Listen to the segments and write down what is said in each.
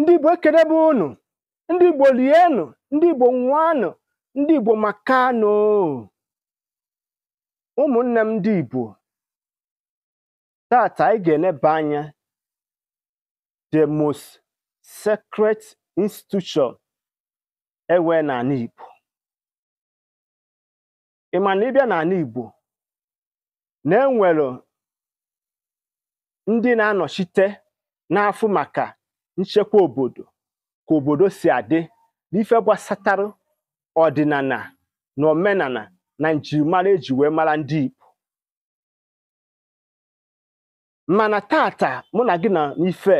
ndị igbo ekelebe unu ndị igbo lienụ ndị igbo nwanụ ndị igbo makanụ ụmụnne m ndị igbo tata anyị ga-eleba anya the most sacred institution ewe n'ala igbo ma na ịbịa n'ala igbo na enwere ndị na-anọchite n'afụ maka nchekwa obodo ka obodo si adị n'ife gbasatara ọdịnala na omenana na njirimara eji wee mara ndị Igbo mana tata mụ na gị na ife.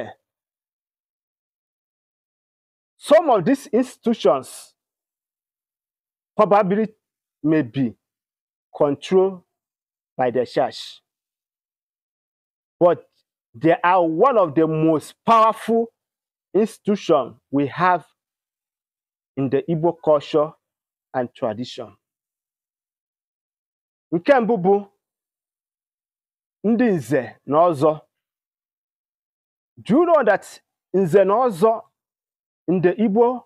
some of these institutions probably may be controlled by the church but they are one of the most powerful institution we have in the Igbo culture and tradition. Nke can't, ndị nze na ọzọ. Do you know that nze na ọzọ in the Igbo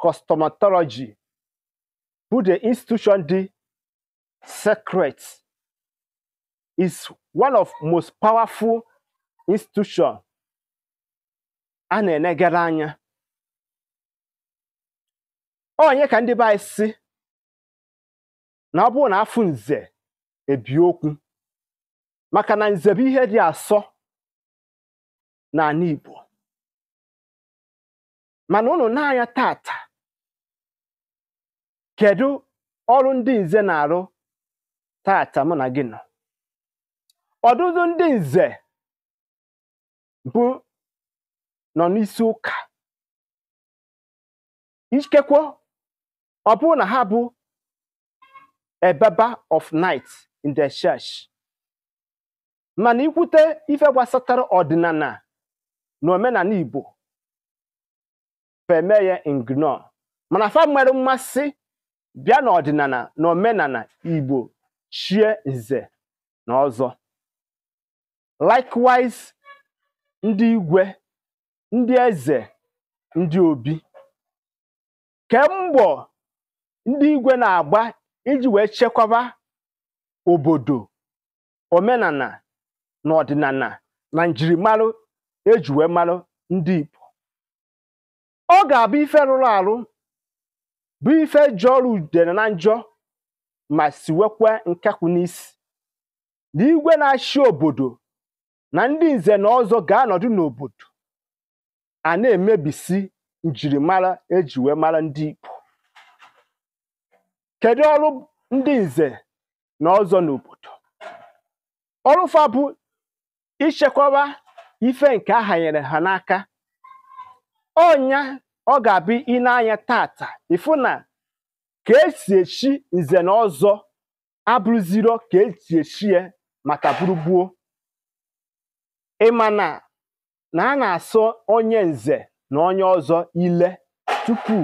cosmology, bụ the institution dị sacred is one of most powerful institution a na-enegara anya onye ka ndị be si na ọ bụrụ na afụ nze ebi okwu maka na nze bụ ihe dị asọ n'ala Igbo mana ụnụ na-anya tata kedu ọrụ ndị nze na-arụ tata mụ na gị nọ ọdụdụ ndị nze bụ nọ n'isi ụka ikekwe ọ bụrụ na ha bụ a of night in the church mana ikwute ife gbasatara ọdịnala na omenala Igbo feme ya ignore mana fa nwere mmasị bịa n'ọdịnala na omenala Igbo chie nze na ọzọ likewise ndị igwe ndị eze ndị obi kemgbọ ndị igwe na-agba iji wee chekwaba obodo omenala na ọdịnala na njirimara eji wee mara ndị ipo ọ ga-abụ ife rụrụ arụ bụ ife ọrụ udere na njọ ma wekwa nkakwụ n'isi na igwe na-achị obodo na ndị nze na ọzọ ga-anọdụ n'obodo a na-emebisi njirimara eji wee mara ndị Igbo kedu ọrụ ndị nze na ọzọ n'obodo ọrụfa bụ ichekwaba ife nke a hanyere ha n'aka ọnya ọ ga-abụ ịnanya n'anya tata ịfụ na ka esi echi nze na ọzọ abụrụziro ka esi echi ya maka gburugburu ịma na na a na-asọ onye nze na onye ọzọ ile tupu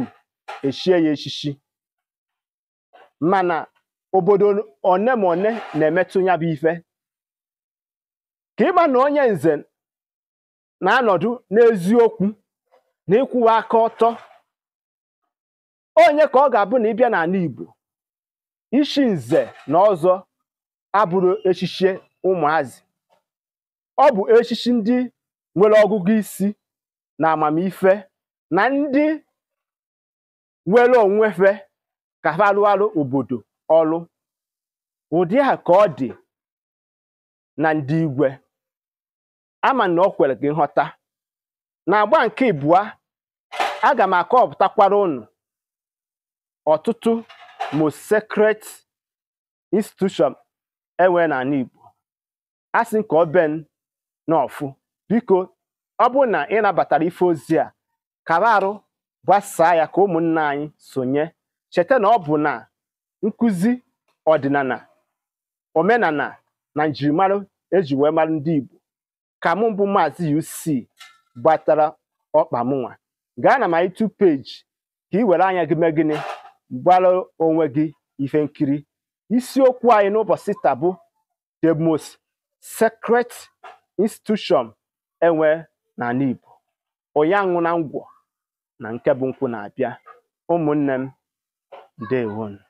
echie ya echichi mana obodo one ma one na-emetụ ya bụ ife ka ịgba na onye nze na-anọdụ n'eziokwu na ịkwụwa aka ọtọ onye ka ọ ga-abụ na ịbịa n'ala Igbo ishi nze na ọzọ abụrụ echichi ụmụazị ọ bụ echichi ndị nwere ọgụgụ isi na amamife na ndị nwere onwefe ka ha rụarụ obodo ọrụ ụdị ha ka ọ dị na ndị igwe ama na ọ kwere gị nghọta na agba nke a ga m akọpụtakwara ụnụ ọtụtụ most secret institution enwe n'ala Igbo a sị ka ọ ben n'ọfụ biko ọ bụrụ na ị nabatara ife ozi a kaba arụ gbasaa ya ka ụmụnna anyị sonye cheta na ọ bụ na nkụzi ọdịnala omenala na njirimara eji wee mara ndị Igbo ka mụ mbụ maazị UC gbatara ọkpa mụnwa gaa na my two page ka ị were anya gị mee gịnị gbara onwe gị ife isiokwu anyị n'ụbọchị taa the institution enwe na onye ụyanwụ na ngwọ na nke bụ nkwụ na-abịa ụmụnne m ndewonu